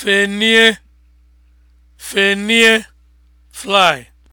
Fenie, fenie, fly.